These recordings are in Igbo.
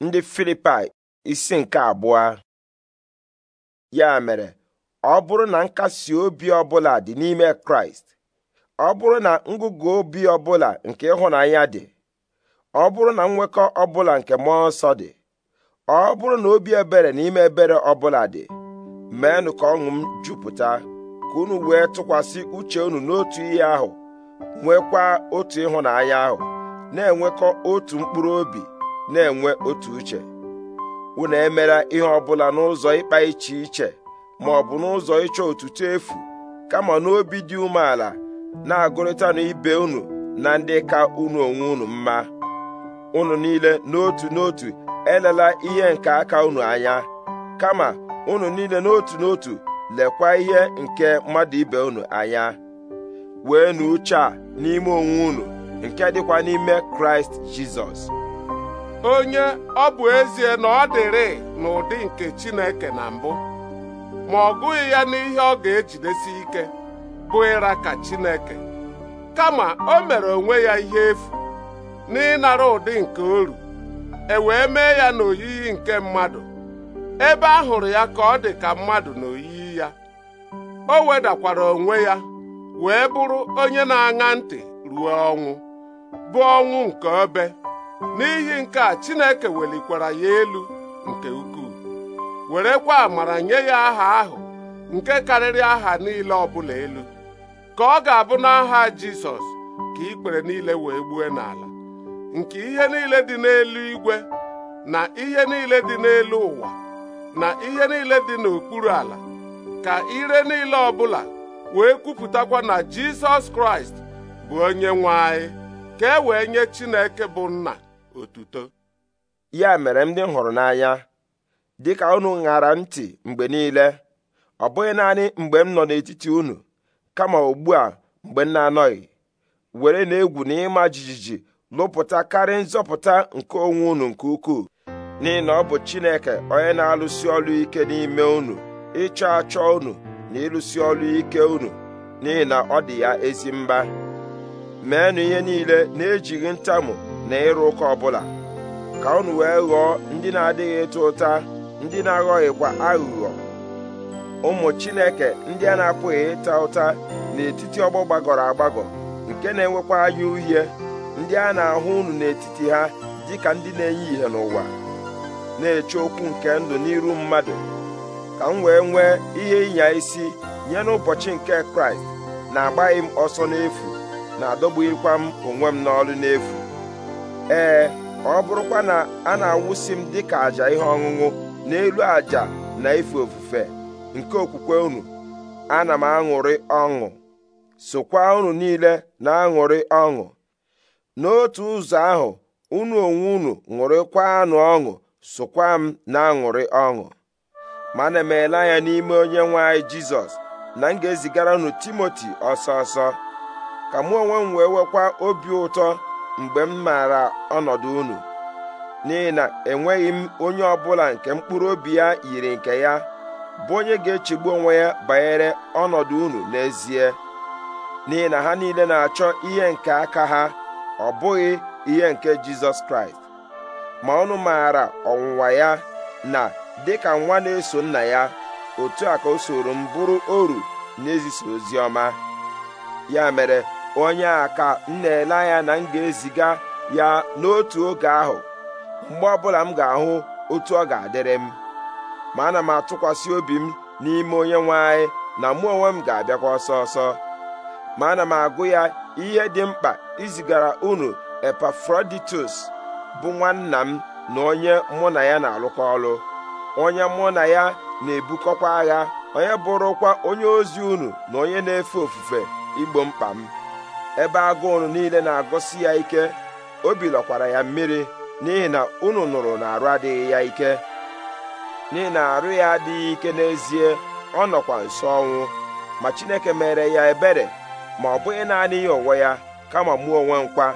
ndị filipai isi nke abụọ ya mere ọ bụrụ na nkasi obi ọbụla dị n'ime kraịst ọ bụrụ na ngụgụ obi ọbụla nke ịhụnanya dị ọ bụrụ na nwekọ ọbụla nke mmụọ nsọ dị ọ bụrụ na obi ebere n'ime ebere ọbụla dị meenụ ka ọṅụ m jupụta ka unu wee tụkwasị uche unu n'otu ihe ahụ nwekwa otu ịhụnanya ahụ na-enwekọ otu mkpụrụ obi na-enwe otu uche unu emela ihe ọbụla n'ụzọ ịkpa iche iche ma ọ bụ n'ụzọ ịchọ otuto efu kama n'obi dị umeala na-agụrịtanụ ibe unu na ndị ka unu onwe unu mma unu niile n'otu n'otu elela ihe nke aka unu anya kama unu niile n'otu n'otu lekwa ihe nke mmadụ ibe unu anya wee nu uche a n'ime onwe unu nke dịkwa n'ime kraịst jizọs onye ọ bụ ezie na ọ dịrị n'ụdị nke Chineke na mbụ ma ọ gụghị ya n'ihe ọ ga-ejidesi ike bụ ịra ka Chineke kama o mere onwe ya ihe efu n'ịnara ụdị nke oru e wee mee ya n'oyiyi nke mmadụ ebe a hụrụ ya ka ọ dị ka mmadụ n'oyiyi ya o wedakwara onwe ya wee bụrụ onye na-aṅa ntị ruo ọnwụ bụ ọnwụ nke obe n'ihi nke a Chineke welikwara ya elu nke ukwuu werekwa amara nye ya aha ahụ nke karịrị aha niile ọbụla elu ka ọ ga-abụ n'aha Jizọs ka ikpere niile wee gbue n'ala nke ihe niile dị n'elu igwe na ihe niile dị n'elu ụwa na ihe niile dị n'okpuru ala ka ire niile ọbụla wee kwupụtakwa na Jizọs Kraịst bụ onye nwe anyị ka e wee nye Chineke bụ nna otuto ya mere ndị m hụrụ n'anya dịka unu ṅara ntị mgbe niile ọ bụghị naanị mgbe m nọ n'etiti unu kama ugbu a mgbe m na-anọghị were na-egwu na ịma jijiji lụpụta karịa nzọpụta nke onwe unu nke ukwuu n'ihi na ọ bụ Chineke onye na-alụsi ọlụ ike n'ime unu ịchọ achọ unu na ịlụsi ọlụ ike unu n'ihi na ọ dị ya ezi mba meenụ ihe niile na-ejighị ntamu na ịrụ ụka ọbụla ka unu wee ghọọ ndị na-adịghị ịta ụta ndị na-aghọghịkwa aghụghọ ụmụ chineke ndị a na-apụghị ịta ụta n'etiti ọgbọ gbagọrọ agbagọ nke na-enwekwa anya uhie ndị a na-ahụ unu n'etiti ha dịka ndị na-enye ihe n'ụwa na-eche okwu nke ndụ n'iru mmadụ ka m wee nwee ihe ịnya isi nye n'ụbọchị nke kraịst na-agbaghị m ọsọ n'efu na-adọgbughịkwa m onwe m n'ọrụ n'efu ee ọ bụrụkwa na a na-awụsi m dịka àjà ihe ọṅụṅụ n'elu àjà na ife ofufe nke okwukwe unu ana m aṅụrị ọṅụ sokwa unu niile na-aṅụrị ọṅụ n'otu ụzọ ahụ unu onwe unu anụ ọṅụ sokwa m na-aṅụrị ọṅụ mana emeela anya n'ime onye nwe anyị jizọs na m ga-ezigara unu timoti ọsọ ọsọ ka mụ onwe m wee nwekwa obi ụtọ mgbe m maara ọnọdụ unu n'ihi na enweghị m onye ọbụla nke mkpụrụ obi ya yiri nke ya bụ onye ga-echegbu onwe ya banyere ọnọdụ unu n'ezie n'ihi na ha niile na-achọ ihe nke aka ha ọ bụghị ihe nke Jizọs Kraịst ma ọnụ maara ọwụwa ya na dịka nwa na-eso nna ya otu a ka o soro m bụrụ oru n'ezisa ozi ọma ya mere onye a ka m na-ele anya na m ga-eziga ya n'otu oge ahụ mgbe ọbụla m ga-ahụ otu ọ ga-adịrị m ma ana m atụkwasị obi m n'ime onye nwe anyị na mụ onwe m ga-abịakwa ọsọ ọsọ ma ana m agụ ya ihe dị mkpa izigara unu Epafroditus bụ nwanna m na onye mụ na ya na-alụkọ ọlụ onye mụ na ya na-ebukọkwa agha onye bụrụkwa onye ozi unu na onye na-efe ofufe igbo mkpa m ebe agụụ niile na-agụsi ya ike obi lọkwara ya mmiri n'ihi na unu nụrụ na arụ adịghị ya ike n'ihi na arụ ya adịghị ike n'ezie ọ nọkwa nso ọnwụ ma Chineke mere ya ebere ma ọ bụghị naanị ya onwe ya kama mụ onwe nkwa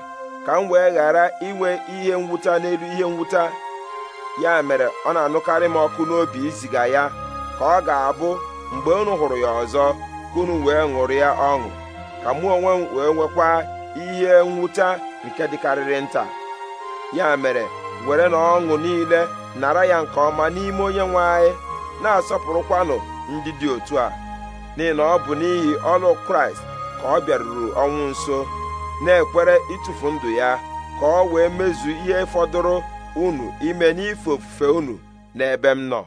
ka m wee ghara inwe ihe mwụta n'elu ihe mwụta ya mere ọ na-anụkarị m ọkụ n'obi iziga ya ka ọ ga-abụ mgbe unu hụrụ ya ọzọ ka unu wee ṅụrụ ya ọṅụ ka mụ onwe m wee nwekwa ihe nwụta nke dịkarịrị nta ya mere were na ọṅụ niile nara ya nke ọma n'ime onye nwe anyị na-asọpụrụkwanụ ndị dị otu a n'ihi na ọ bụ n'ihi ọlụ kraịst ka ọ bịaruru ọnwụ nso na-ekwere ịtụfu ndụ ya ka ọ wee mezu ihe fọdụrụ unu ime n'ife ofufe unu n'ebe m nọ